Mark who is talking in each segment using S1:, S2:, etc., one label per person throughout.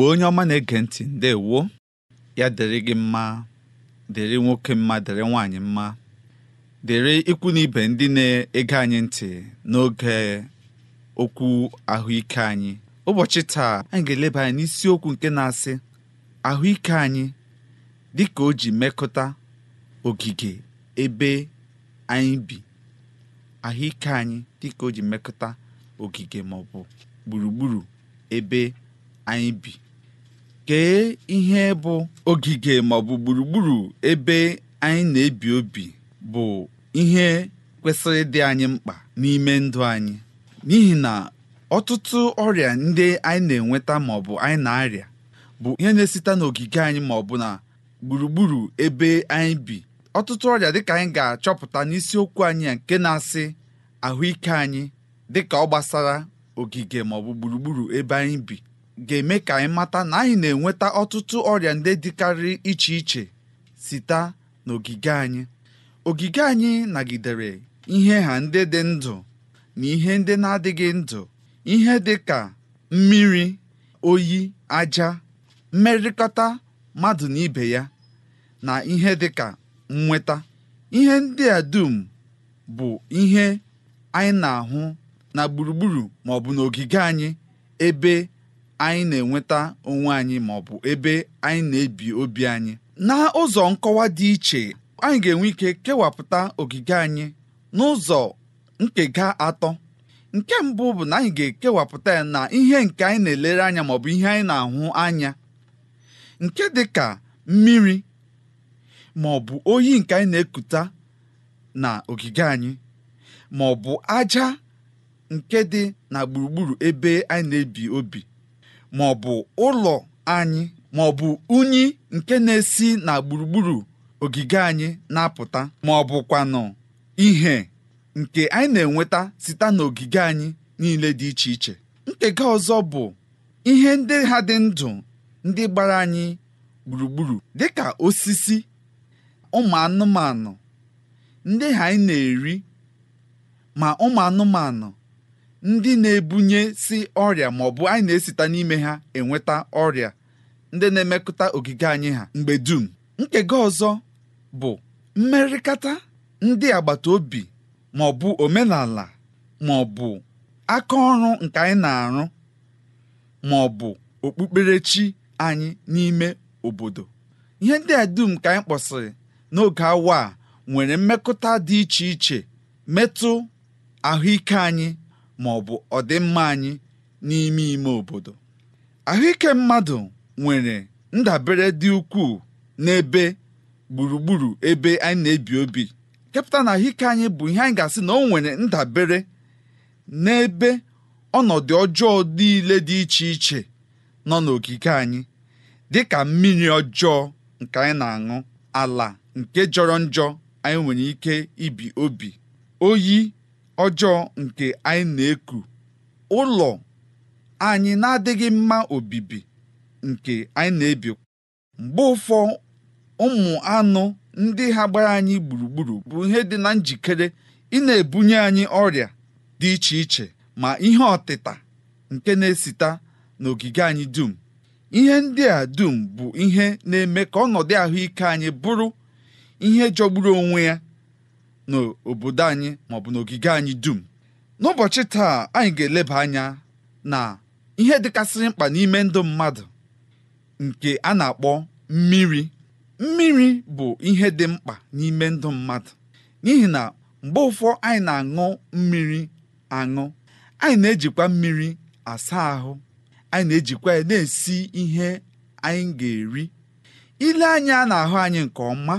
S1: mgbe onye ọma na-ege ntị ndewo ya dịrị gị mma dịrị nwoke mma dịrị nwaanyị mma dịrị ikwu na ibe ndị na-ege anyị ntị n'oge okwu ahụike anyị ụbọchị taa anyị ga-eleba anyị n'isiokwu nke na-asị ahụike anyị dị ka o ji mekọta ogige ebe anyị ahụike anyị dị ka o ji mekọta ogige ma gburugburu ebe anyị bi kee ihe bụ ogige maọbụ gburugburu ebe anyị na-ebi obi bụ ihe kwesịrị ịdị anyị mkpa n'ime ndụ anyị n'ihi na ọtụtụ ọrịa ndị anyị na-enweta maọbụ anyị na-arịa bụ ihe na-esite n'ogige anyị maọbụ na gburugburu ebe anyị bi ọtụtụ ọrịa dịka anyị ga-achọpụta n'isiokwu anyị nke na-asị ahụike anyị dịka ọ gbasara ogige maọbụ gburugburu ebe anyị bi ga-eme ka anyị mata na anyị na-enweta ọtụtụ ọrịa ndị dịkarị iche iche site n'ogige anyị ogige anyị nagidere ihe ha ndị dị ndụ na ihe ndị na-adịghị ndụ ihe dị ka mmiri oyi aja mmerịkọta mmadụ na ibe ya na ihe dị ka nnweta ihe ndị a dum bụ ihe anyị na-ahụ na gburugburu ma n'ogige anyị ebe anyị na-enweta onwe anyị ma ọ bụ ebe anyị na-ebi obi anyị na ụzọ nkọwa dị iche anyị ga-enwe ike kewapụta ogige anyị n'ụzọ nkega atọ nke mbụ bụ na anyị ga-ekewapụta ya na ihe nke anyị na-elere anya maọbụ bụ ihe anyị na-ahụ anya nke dị ka mmiri ma ọ bụ oyi nke anyị na-ekuta na ogige anyị ma ọ bụ aja nke dị na gburugburu ebe anyị na-ebi obi ma ọ bụ ụlọ anyị ma ọ bụ unyi nke na-esi na gburugburu ogige anyị na-apụta ma ọ bụkwanụ ihe nke anyị na-enweta site n'ogige anyị niile dị iche iche nkega ọzọ bụ ihe ndị ha dị ndụ ndị gbara anyị gburugburu Dị ka osisi ụmụ anụmanụ ndị ha anyị na-eri ma ụmụ anụmanụ ndị na-ebunye si ọrịa bụ anyị na-esita n'ime ha enweta ọrịa ndị na-emekọta ogige anyị ha mgbe dum nkega ọzọ bụ mmerịkata ndị agbata obi bụ omenala bụ aka ọrụ nke anyị na-arụ maọbụ okpukperechi anyị n'ime obodo ihe ndị a dum ka anyị kpọsịrị n'oge awa a nwere mmekọta dị iche iche metụ ahụike anyị ma ọ bụ ọdịmma anyị n'ime ime obodo ahụike mmadụ nwere ndabere dị ukwuu n'ebe gburugburu ebe anyị na-ebi obi kepụta na ahụike anyị bụ ihe anyị ga-asị na o nwere ndabere n'ebe ọnọdụ ọjọọ niile dị iche iche nọ n'okike anyị dị ka mmiri ọjọọ nke anyị na-aṅụ ala nke jọrọ njọ anyị nwere ike ibi obi oyi ọjọọ nke anyị na-eku ụlọ anyị na-adịghị mma obibi nke anyị na-ebi mgbe ụfọ ụmụ anụ ndị ha gbara anyị gburugburu bụ ihe dị na njikere ị na-ebunye anyị ọrịa dị iche iche ma ihe ọtịta nke na-esita n'ogige anyị dum ihe ndị a dum bụ ihe na-eme ka ọnọdụ ahụike anyị bụrụ ihe jọgburu onwe ya n'obodo anyị maọbụ n'ogige anyị dum n'ụbọchị taa anyị ga-eleba anya na ihe dịkasịrị mkpa n'ime ndụ mmadụ nke a na-akpọ mmiri mmiri bụ ihe dị mkpa n'ime ndụ mmadụ n'ihi na mgbe ụfọ anyị na-aṅụ mmiri aṅụ anyị na-ejikwa mmiri asa ahụ anyị na-ejikwa ya na-esi ihe anyị ga-eri ile anya na-ahụ anyị nke ọma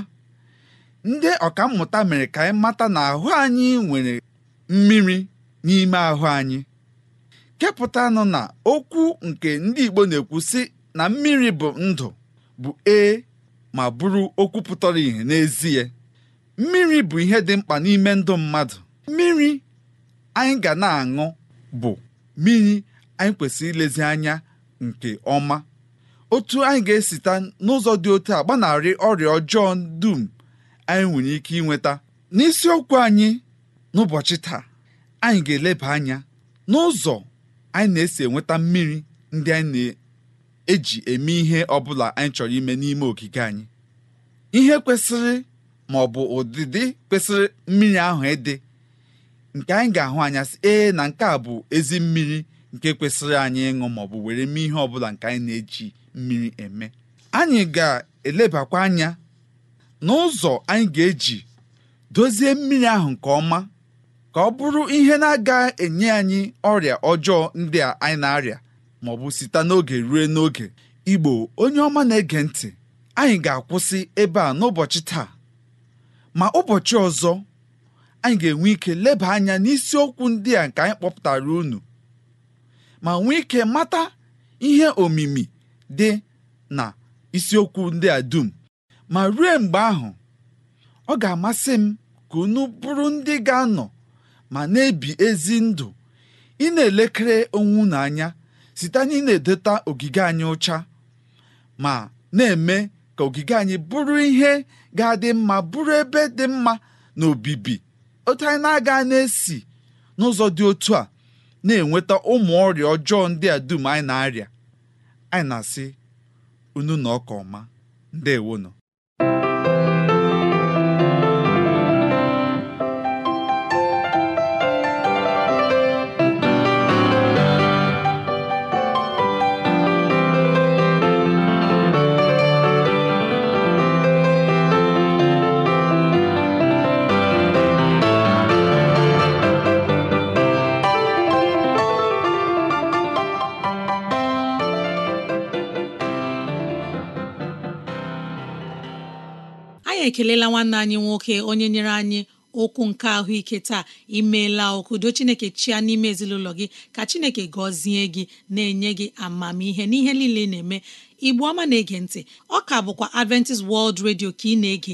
S1: ndị mmụta mere ka anyị mata na ahụ anyị nwere mmiri n'ime ahụ anyị kepụtanụ na okwu nke ndị Igbo na-ekwu sị na mmiri bụ ndụ bụ ee ma bụrụ okwu pụtara ìhè n'ezie mmiri bụ ihe dị mkpa n'ime ndụ mmadụ mmiri anyị ga na-aṅụ bụ mmiri anyị kwesịrị ilezi anya nke ọma otu anyị ga-esita n'ụzọ dị otu a gbanarị ọrịa ọjọọ dum anyị nwere ike inweta n'isiokwu anyị n'ụbọchị taa anyị ga-eleba anya n'ụzọ anyị na-esi enweta mmiri ndị anyị na-eji eme ihe ọbụla anyị chọrọ ime n'ime ogige anyị ihe kwesịrị ma ọ bụ ụdịdị kwesịrị mmiri ahụ ịdị nke anyị ga-ahụ anya sị ee na nke a bụ ezi mmiri nke kwesịrị anyị ịṅụ ma ọ bụ were mee ihe ọbụla nke anyị na-eji mmiri eme anyị ga-elebakwa anya n'ụzọ anyị ga-eji dozie mmiri ahụ nke ọma ka ọ bụrụ ihe na-aga enye anyị ọrịa ọjọọ ndị a anyị na-arịa ma ọ bụ site n'oge rue n'oge igbo onye ọma na-ege ntị anyị ga-akwụsị ebe a n'ụbọchị taa ma ụbọchị ọzọ anyị ga-enwe ike leba anya n'isiokwu ndị a nke anyị kpọpụtara unu ma nwee ike mata ihe omimi dị na isiokwu ndị a dum ma ruo mgbe ahụ ọ ga-amasị m ka unu bụrụ ndị ga-anọ ma na-ebi ezi ndụ ị na-elekere onwe unu anya site na ị na edeta ogige anyị ụcha ma na-eme ka ogige anyị bụrụ ihe ga-adị mma bụrụ ebe dị mma na obibi otu anyị na-aga na-esi n'ụzọ dị otu a na-enweta ụmụ ọrịa ọjọọ ndị a dum anyị na-arịa anyị na-asị unu na ọka ọma nọ"
S2: ekelela nwanne anyị nwoke onye nyere anyị okwu nke ahụike taa imeela do chineke chia n'ime ezinụlọ gị ka chineke gọzie gị na-enye gị amamihe n'ihe niile ị na-eme igbu ọma na-ege ntị ọ ka bụkwa Adventist World Radio ka ị na-ege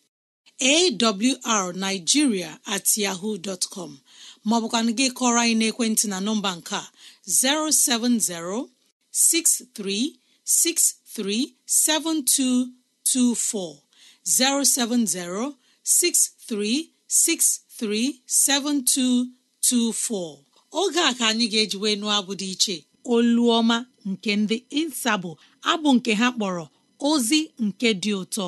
S2: arnigiria at yahoo dtcom maọbụkwanụ gị kọrọ anyị n'ekwentị na nọmba nke 070 -6363 -7224. 070-6363-7224 oge a ka anyị ga-eji wee nụọ abụ dị iche oluoma nke ndị insabụ abụ nke ha kpọrọ ozi nke dị ụtọ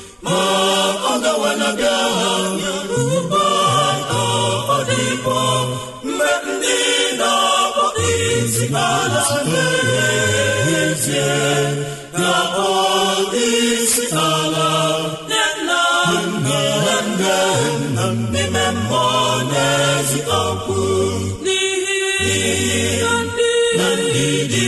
S3: na-abịa ugbo ọ ndị na-akpọta isi ala na-erezie na n'ihi ndị dị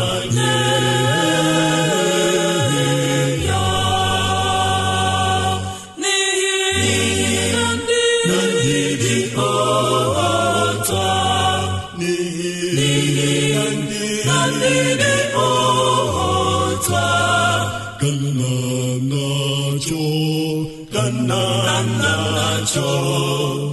S3: cho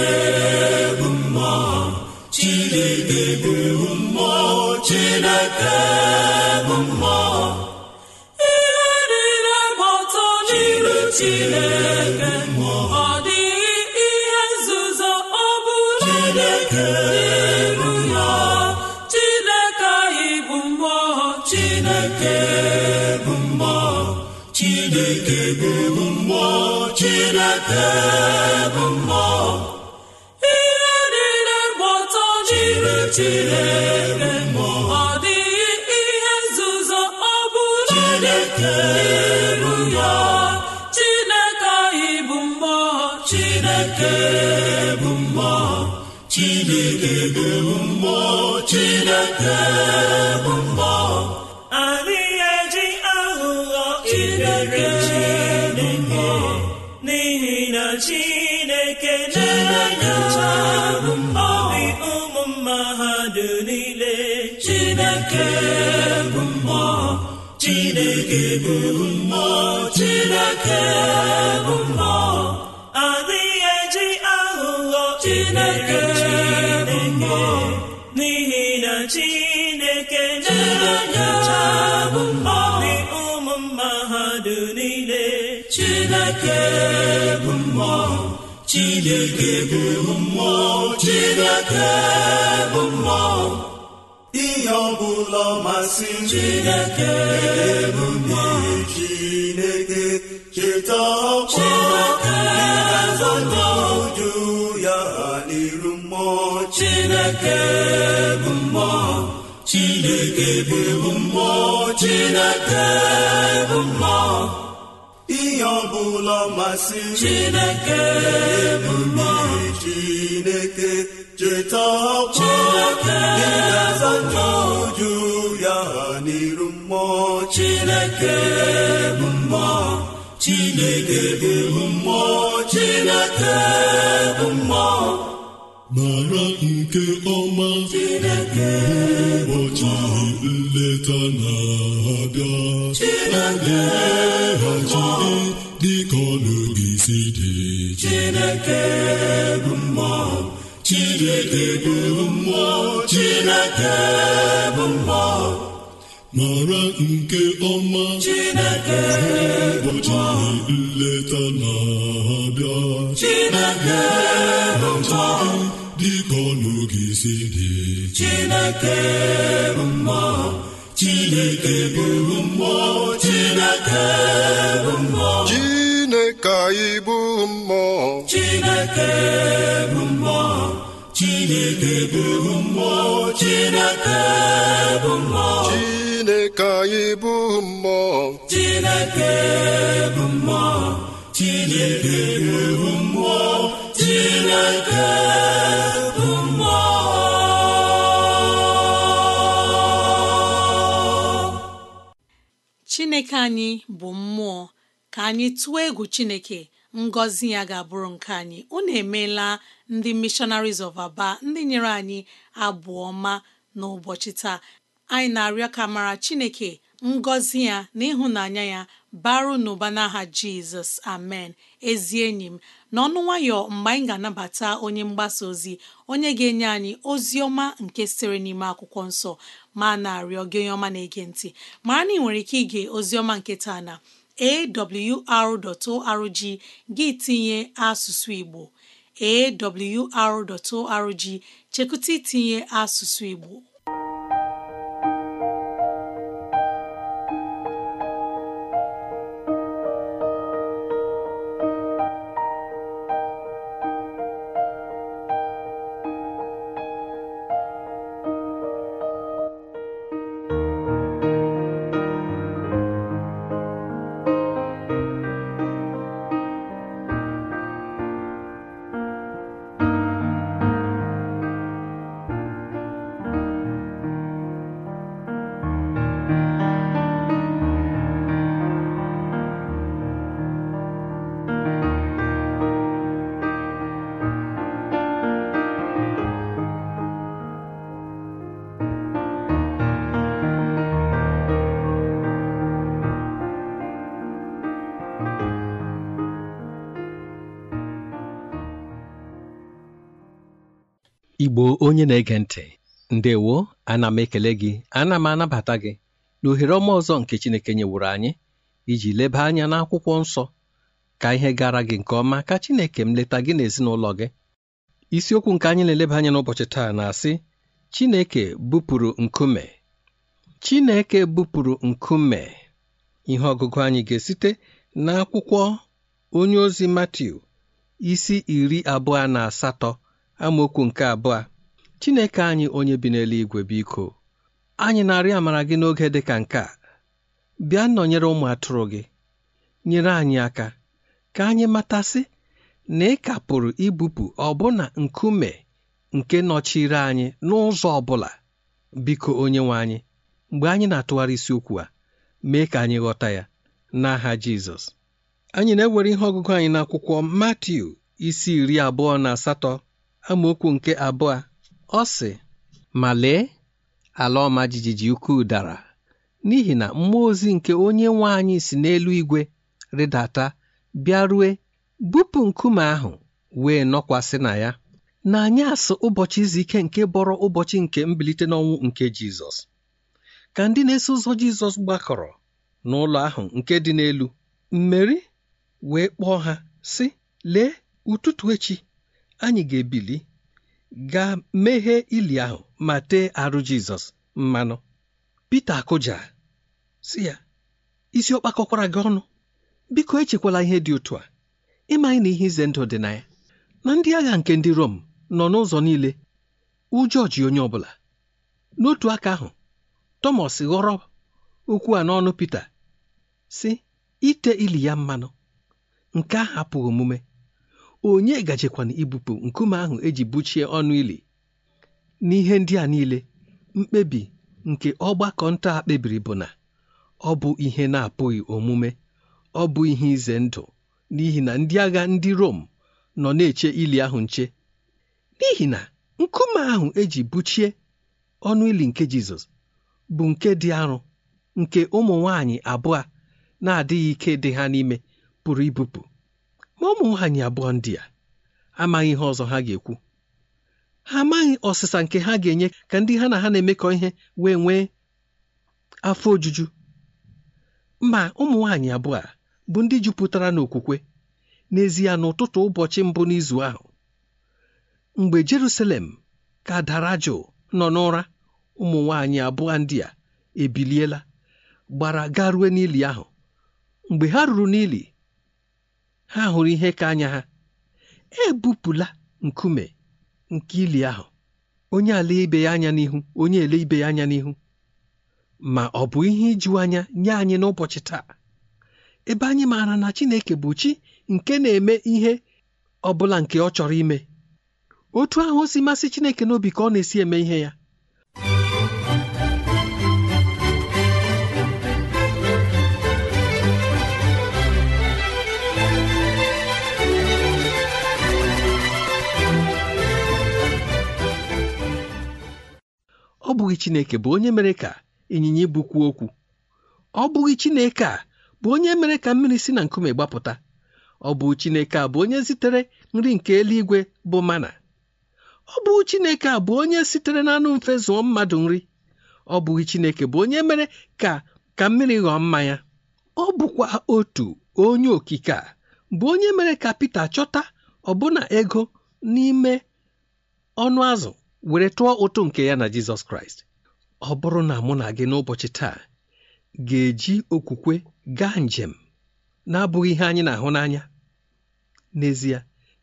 S3: ihe niile chineke ọ dịghị ihe nzuzo chineke chineke bụ mmụọ chineke bụ mmụọ chineke bụ mma eji aghụghọ chineke bụ mma n'ihi na chineke na-enye ụmụ mmadụ niile chineke bụ mma chineke bụ chineke bụ eji aghụghọ chineke ekene chabụ mmụọ ụmụ mmadụ niile chineke bụ mmụọ chineke bụ mmụọ chineke bụ mmụọ ihe ọ bụla masị chineke bụ mmụọ chineke cheta ọkpọ ịgazọnọju ya n'iru mmụọ chineke bụ mmụọ chineke bụ mmụọ chineke bụ mmụọ ihe ọbụla masị chineke bụ mmụọ chineke cheta ọkpọ ịgaza n'uju ya n'iru mmụọ chineke bụ mmụọ chineke bụ mmụọ chineke bụ mmụọ mara nke ọma ụbọchị nleta na-abịa a ga-ehachi dịka ọnụgị si dị Chineke bụ mmụọ Chineke bụ mmụọ Chineke bụ mmụọ mara nke ọma Chineke ụbọchị nleta na-abịa Chineke bụ dịka ọnụ si dị Chineke anyị Chineke bụ mmụọ Chineke bụ mmụọ Chineke bụ mmụọ chineke anyị bụ mmụọ chineke bụ mmụọ chineke bụ mmụọ chineke bụ mmụọ
S2: chineke anyị bụ mmụọ ka anyị tụọ egwu chineke ngọzi ya ga-abụrụ nke anyị unu emeela ndị missionaries of aba ndị nyere anyị abụ ọma n'ụbọchị taa anyị na-arịọ ka mara Chineke ngọzi ya na ịhụnanya ya baru n'ụba n'aha Jizọs amen ezi enyi m n'ọnụ nwayọ mgbe anyị ga-anabata onye mgbasa ozi onye ga-enye anyị ozi ọma nke sịrị n'ime akwụkwọ nsọ ma na-arịọ gị onye ọma na-ege ntị mara na ị nwere ike ige ozi ọma nke na awr.org gị tinye asụsụ Igbo awr.org chekụta itinye asụsụ Igbo
S4: gboo onye na-ege ntị ndewo ana m ekele gị ana m anabata gị na ohere ọma ọzọ nke Chineke nyewuru anyị iji leba anya n'akwụkwọ nsọ ka ihe gara gị nke ọma ka Chineke m leta gị n'ezinụlọ gị isiokwu nke anyị na-eleba anya n'ụbọchị taa na-asị Chineke bupụrụ nkume Chineke bupụrụ nkume ihe ọgụgụ anyị ga-esite n'akwụkwọ onye ozi Matiu isi iri abụọ na asatọ amaokwu nke abụọ Chineke anyị onye bi n'eluigwe biko anyị na-arịọ amara gị n'oge dị ka nke a bịa nọnyere ụmụ atụrụ gị nyere anyị aka ka anyị matasị na ị ka pụrụ ibupụ ọbụna nkume nke nọchiri anyị n'ụzọ ọ bụla biko nwe anyị mgbe anyị na-atụgharị isiokwu a mee ka anyị ghọta ya n'aha Jizọs anyị na-ewere ihe ọgụgụ anyị n'akwụkwọ Matiu isi iri abụọ na asatọ amaokwu nke abụọ ọ sị ma lee ala ọma jijiji ukwuu dara n'ihi na mmụọ ozi nke onye nwe anyị si n'elu igwe rịdata bịarue bupụ nkume ahụ wee nọkwasị na ya na anyị asụ ụbọchị izu ike nke bọrọ ụbọchị nke mbilite n'ọnwụ nke Jizọs ka ndị na-eso ụzọ Jizọs gbakọrọ n'ụlọ ahụ nke dị n'elu mmeri wee kpọọ ha sị lee ụtụtụ echi anyị ga-ebili ga meghee ili ahụ ma tee arụ Jizọs mmanụ Pita akụja si ya isi ọ gị ọnụ biko echekwala ihe dị otu a ịmanye na ihe ize ndụ dị na ya na ndị agha nke ndị Rom nọ n'ụzọ niile ụjọ ji onye ọ bụla n'otu aka ahụ tomas ghọrọ okwu a n'ọnụ Pita si ite ili ya mmanụ nke ahụ apụghị omume onye gajekwana ibupụ nkume ahụ eji buchie ọnụ ili n'ihe ndị a niile mkpebi nke ọgbakọ nta a kpebiri bụ na ọ bụ ihe na-apụghị omume ọ bụ ihe ize ndụ n'ihi na ndị agha ndị Rom nọ na-eche ili ahụ nche n'ihi na nkume ahụ eji buchie ọnụ ili nke Jizọs bụ nke dị arọ nke ụmụ nwanyị abụọ na-adịghị ike dị ha n'ime pụrụ ibupụ ma ụmụ nwanyị abụọ ndị a amaghị ihe ọzọ ha ga-ekwu ha amaghị ọsịsa nke ha ga-enye ka ndị ha na ha na-emekọ ihe wee nwee afọ ojuju ma ụmụ nwaanyị abụọ a bụ ndị jupụtara n'okwukwe n'ezie n'ụtụtụ ụbọchị mbụ n'izu ahụ mgbe Jerusalem ka dara jụụ nọ n'ụra ụmụ nwaanyị abụọ ndị a ebiliela gbara garue n'ili ahụ mgbe ha ruru n'ili ha hụrụ ihe ka anya ha ebupụla nkume nke ili ahụ onye ala ibe ya anya n'ihu onye ele ibe ya anya n'ihu ma ọ bụ ihe iju anya nye anyị n'ụbọchị taa ebe anyị maara na Chineke bụ chi nke na-eme ihe ọ bụla nke ọ chọrọ ime otu ahụ si masị Chineke n'obi ka ọ na-esi eme ihe ya ọ bụghị chineke bụ onye mere ka ịnyịnya ibu okwu ọ bụghị chineke a bụ onye mere ka mmiri si na nkume gbapụta ọ bụ chineke a bụ onye zitere nri nke eluigwe bụ mana ọ bụghị chineke a bụ onye sitere na anụ mfe zụọ mmadụ nri ọ bụghị chineke bụ onye mere ka ka mmiri ghọọ mmanya ọ bụkwa otu onye okike a bụ onye mere ka Pita chọta ọbụna ego n'ime ọnụ azụ were tụọ ụtụ nke ya na jizọs kraịst ọ bụrụ na mụ na gị n'ụbọchị taa ga-eji okwukwe gaa njem na-abụghị ihe anyị na-ahụ n'anya n'ezie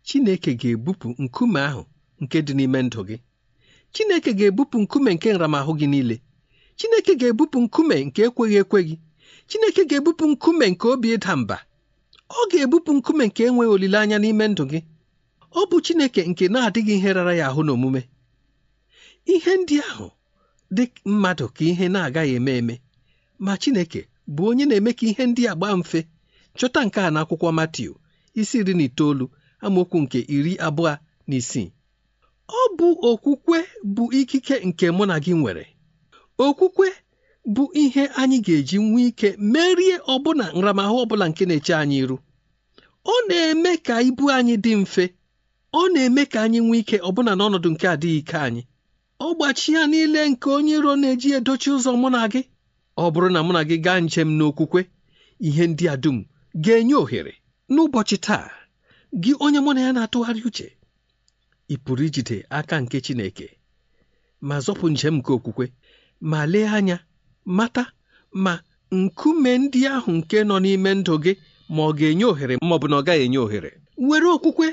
S4: Chineke ga-ebupụ nkume ahụ nke dị n'ime ndụ gị Chineke ga-ebupụ nkume nke nramahụ gị niile Chineke ga-ebupụ nkume nke ekweghị ekwe gị Chineke ga-ebupụ nkume nke obi ịda mba ọ ga-ebupụ nkume nke enweghị olileanya n'ime ndụ gị ọ bụ Chineke nke na-adịghị ihe rara ya ahụ n'omume ihe ndị ahụ dị mmadụ ka ihe na-agaghị eme eme ma Chineke bụ onye na-eme ka ihe ndị a gbaa mfe chọta nke a n'akwụkwọ Matiu isi iri na itoolu amaokwu nke iri abụọ na isii ọ bụ okwukwe bụ ikike nke mụ na gị nwere okwukwe bụ ihe anyị ga-eji nwee ike merie ọbụna nramahụ ọbụla nke na-eche anyị iru ọ na-eme ka ibu anyị dị mfe ọ na-eme ka anyị nwee ike ọbụna n'ọnọdụ nke adịghị ike anyị ọgbachi ya niile nke onye iro na-eji edochi ụzọ mụ na gị ọ bụrụ na mụ na gị gaa njem n'okwukwe ihe ndị a dum ga-enye ohere n'ụbọchị taa gị onye mụ na ya na-atụgharị uche ị pụrụ ijide aka nke Chineke ma zọpụ njem nke okwukwe ma lee anya mata ma nkume ndị ahụ nke nọ n'ime ndụ gị ma ọ ga-enye ohere ma ọ bụ na ọ gaghị enye ohere were okwukwe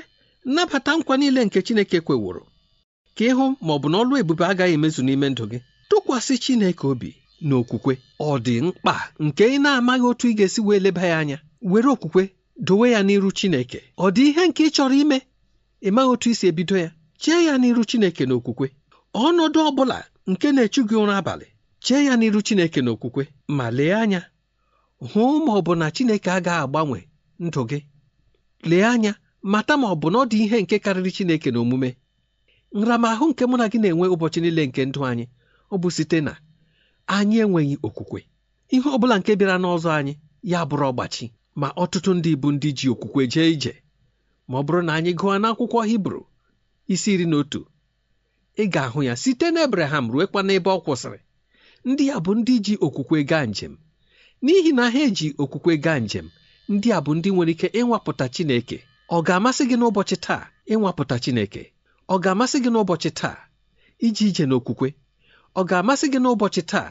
S4: nabata nkwa niile nke Chineke kweworo ka ịhụ ma ọ bụ na ọlụ ebube agaghị emezu n'ime ndụ gị tụkwasị Chineke obi na okwukwe ọ dị mkpa nke ị na-amaghị otu ị ga-esi wee leba ya anya were okwukwe dowe ya n'iru Chineke ọ dị ihe nke ị chọrọ ime ịmaghị otu isi ebido ya chee ya n'iru Chineke na okwukwe ọnọdụ ọ bụla nke na-echu gị ụra abalị chee ya n'iru Chineke na okwukwe ma lee anya hụ ma ọ bụ na Chineke agaghị agbanwe ndụ gị lee anya mata ma ọ bụ na ọ dị ihe nke karịrị Chineke na omume nramahụ nke mụ na gị na-enwe ụbọchị niile nke ndụ anyị ọ bụ site na anyị enweghị okwukwe ihe ọ bụla nke bịara n'ọzọ anyị ya bụrụ ọgbachi ma ọtụtụ ndị bụ ndị ji okwukwe jee ije ma ọ bụrụ na anyị gụọ n'akwụkwọ hibru isi iri na otu ị ga-ahụ ya site na ebraham ruekwa n'ebe ọ kwụsịrị ndị a bụ ndị ji okwukwe gaa njem n'ihi na ha eji okwukwe gaa njem ndị a bụ ndị nwere ike ịnwapụta chineke ọ ga-amasị gị n'ụbọchị taa ịnwapụta chineke ọ ga-amasị gị n'ụbọchị taa iji ije n'okwukwe ọ ga-amasị gị n'ụbọchị taa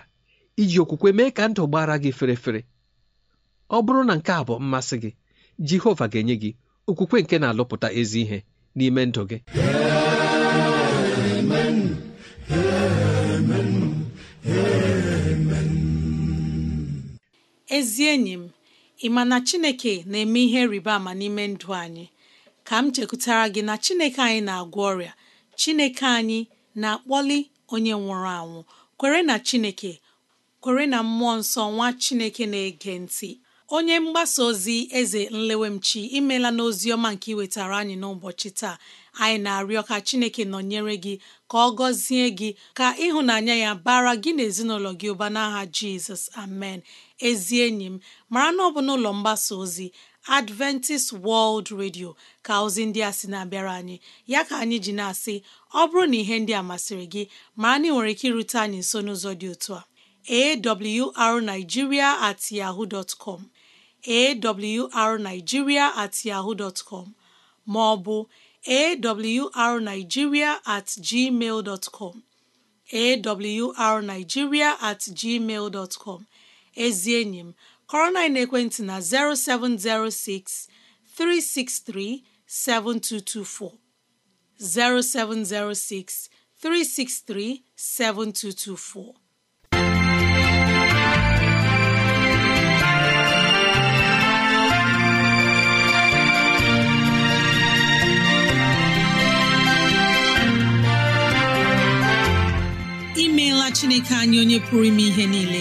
S4: iji okwukwe mee ka ndụ gbara gị ferefere. ọ bụrụ na nke a bụ mmasị gị Jehova ga-enye gị okwukwe nke na-alụpụta ezi ihe n'ime ndụ gị
S2: ezi enyi m ị ma na Chineke na-eme ihe rịba ama n'ime ndụ anyị ka m chekwutara gị na chineke anyị na-agwọ ọrịa chineke anyị na-akpọli onye nwụrụ anwụ kwere na chineke kwere na mmụọ nsọ nwa chineke na-ege ntị onye mgbasa ozi eze nlewemchi imela n'ozi ọma nke iwetara anyị n'ụbọchị taa anyị na-arịọ ka chineke nọnyere gị ka ọ gọzie gị ka ịhụnanya ya bara gị na ezinụlọ gị ụba n'aha jizọs amen ezi enyi m mara na ọ bụ n'ụlọ mgbasa ozi adventist world radio ka ozi ndị a sị na-abịara anyị ya ka anyị ji na-asị ọ bụrụ na ihe ndị a masịrị gị ma anyị nwere ike irute anyị nso n'ụzọ dị otu a arigiria at com at com ma ọ bụ at ezi enyi m kọrọ na ekwentị na 0706 363 7224 0706 363 7224. imeela chineke anyị onye pụrụ ime ihe niile